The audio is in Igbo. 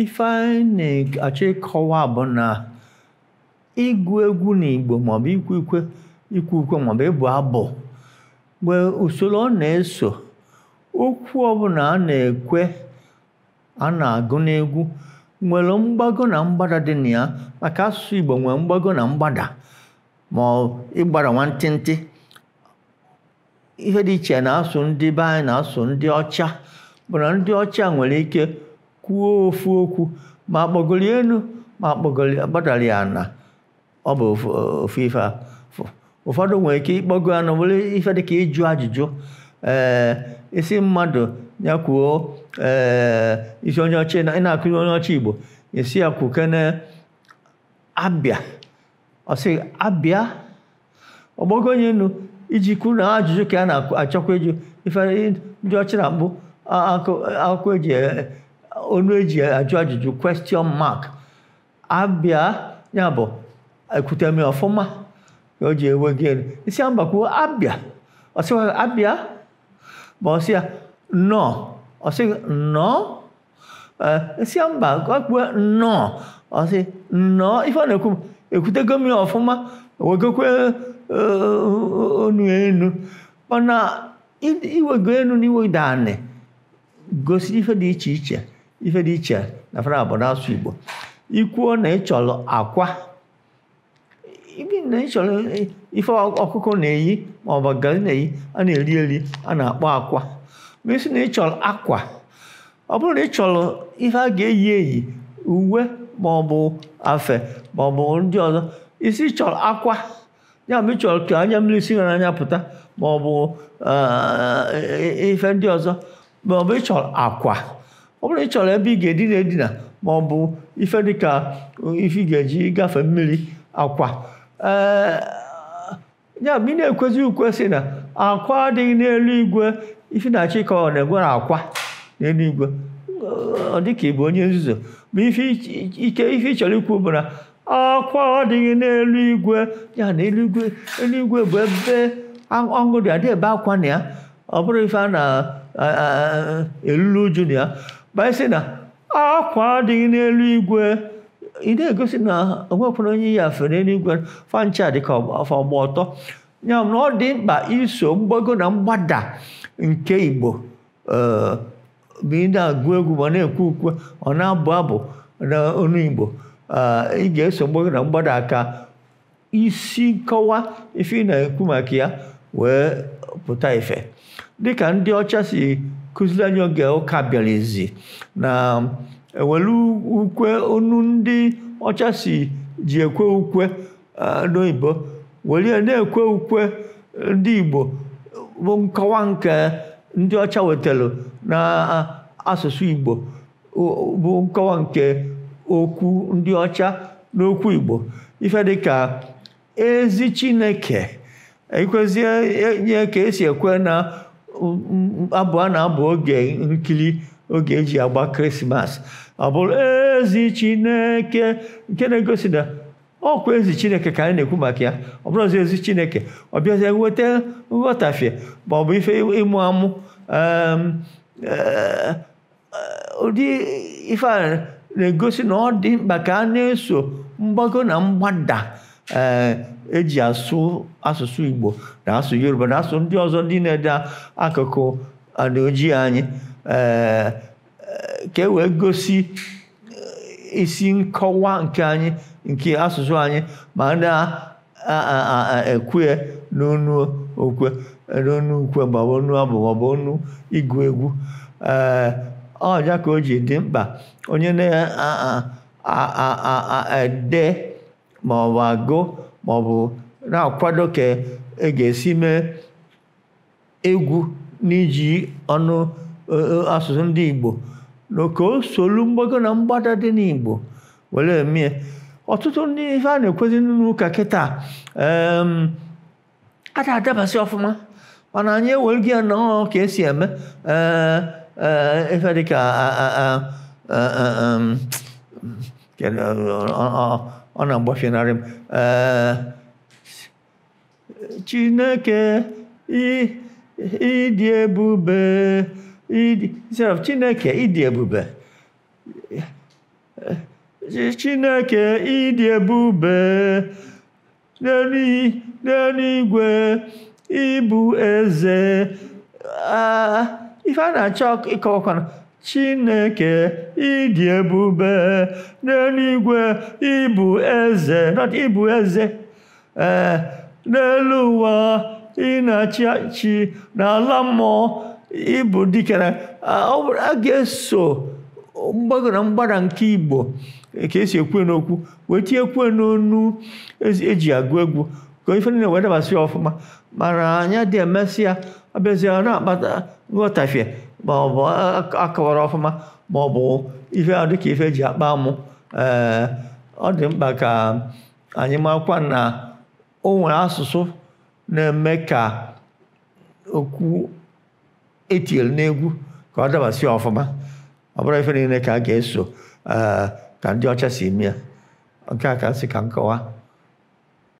ife anyị na-achọ ịkọwa bụ na ịgụ egwu n'Igbo maọbụ ikwu ikwe ikwu ikwe maọbụ ịbụ abụ mgbe usoro ọ na-eso okwu ọbụla a na-ekwe a na-agụ n'egwu nwere mgbago na mgbada dị na ya maka asụsụ Igbo nwere mgbago na mgbada ma ịgbara nwantịntị ihe dị iche na-asụ ndị be anyị na-asụ ndị ọcha bụ na ndị ọcha nwere ike kwuo ofu okwu ma kpọgolie enu ma kpọgọlị ya ana ọ bụ ofu ife ụfọdụ nwere ike ịkpọgo anụ nwere ife dị ka ịjụ ajụjụ ee isi mmadụ ya kwuo ee isi onye ọcha ị na-akụzi onye ọcha Igbo isi ya kwukene abịa ọ sị abịa ọgbọgo iji kwu na ajụjụ ka a na-achọkwa ịjụ ife ndị ọcha na-akpụ akụ eji ɔno agyi adwo adwodwo question mark abia nyabɔ akutamiafo ma ɔgye ewu again esi ambako abia ɔsi wɔ abia ma ɔsi a nɔ ɔsi nɔ ɛɛ esi ambako nɔ ɔsi nɔ ifa na ekum ekutamiafo ma wɔgekwe ɛɛ onu enu ɔna iwege enu na iwege daani gosi ife dị iche iche. ife dị iche na fara bụ n'asụ Igbo ikwuo na ịchọrọ akwa na ịchọrọ e, ife ọkụkọ na-eyi ma ọ bụ garị na-eyi a na-eri eri a na-akpọ akwa ma isi na ịchọrọ akwa ọ bụrụ na ịchọrọ ife a ga-eyi eyi uwe ma ọ bụ afe ma ọ bụ ndị ọzọ isi chọrọ akwa ya ma ịchọrọ ka anya mmiri si n'anya pụta ma ọ bụ e, e, ife ndị ọzọ ma ọ bụ ịchọrọ akwa ọ bụrụ ị chọrọ ebe ị ga-edina edina ma ọ bụ ife dịka uh, ife ị ga-eji gafe mmiri akwa eh, ya bụ ị na-ekwezi ukwe si na akwa adịghị n'elu igwe ife na-achọ ịkọ ọ na-egwere akwa n'elu igwe ọ dịka ị bụ onye nzuzo ma ike ife ị ikwu bụ na akwa adịghị n'elu igwe ya na eluigwe eluigwe bụ ebe ọṅụ dị adị ebe akwa na ya ọ bụrụ ife a na-elulu eh, eh, uju na ya banyị sị na akwa adịghị n'elu igwe ị na-egosi na onwekwara onye ya afe n'eluigwe fancha dịka afọ ọgba ọtọ ya na ọ dị mkpa iso mgbago na mgbada nke igbo bụ ị na-agụ egwu ma na-ekwu ukwe ọ na-abụ abụ na onu igbo ị ga-eso mgbago na mgbada ka isi nkọwa ife ị na-ekwu maka ya wee pụta ife dịka ndị ọcha si kụziri anyị oge ụka ezi na ewelu ukwe onu ndị ọcha si ji ekwe ukwe n'oyibo welie na-ekwe ukwe e, ndị igbo bụ nkọwa nke ndị ọcha wetara na asụsụ igbo bụ nkọwa nke okwu ndị ọcha n'okwu igbo ife dika ezi chineke ekwezie e, nye ka esi ekwe na abụọ a na-abụ oge nkiri oge eji agba Krismas ọ bụrụ ezi Chineke nke na-egosi na ọkwa ezi Chineke ka anyị na-ekwu maka ya ọ ezi Chineke ọ bịazi nweta nghọtafie ma ọ bụ ife ịmụ amụ um, um, ụdị ife a na-egosi na ọ dị mkpa ka a na-eso mgbago na mgbada eji asụ asụsụ Igbo na asụ Yoruba na asụ ndị ọzọ dị na-ede akụkụ ana anyị ka e wee gosi isi nkọwa nke anyị nke asụsụ anyị ma na-ekwe n'onu okwe n'onu ukwe ma onu abụ ma ọ bụ onu ịgụ egwu ọja ka o ji dị mkpa onye na-ede ma ọ bụ agụ ma ọ bụ na-akwado ka e ga-esi mee egwu n'iji ọnụ e, e, asụsụ ndị Igbo ka o solu mgbago na mgbada dị n'Igbo were mie ọtụtụ ndị ife a na-ekwezi n'ụka kịta a na-adabasị ọfụma mana anyị ewelụghị ya na ka esi eme e, ife dịka ọ na-agbafenarị m e, chineke ịdị ebube chineke ịdị ebube e, chineke ịdị ebube n'eluigwe ịbụ eze ife a na-achọ ịkọwakwana chineke ịdị ebube n'eluigwe ịbụ eze ịbụ eze ee n'elu ụwa ị na-achị achị n'ala mmụọ ịbụ dikere a ga-eso mgbago na mgbada nke igbo ka esi ekwe n'okwu wetie ekwe n'onu eji agụ egwu ka ife niile wee dabasị ọfụma mana anya dị emesịa abịazi na-akpata nghọtafie maọbụ akọwara ọfụma maọbụ ife dịka ife ji akpa mụ ee eh, ọ dị mkpa ka anyị makwa na o nwere asụsụ na-eme ka okwu etinyere n'egwu ka ọ dabasị ọfụma ọ bụrụ ife niile ka a ga-eso eh, ka ndị ọcha si eme nke a ka sị ka m kọwaa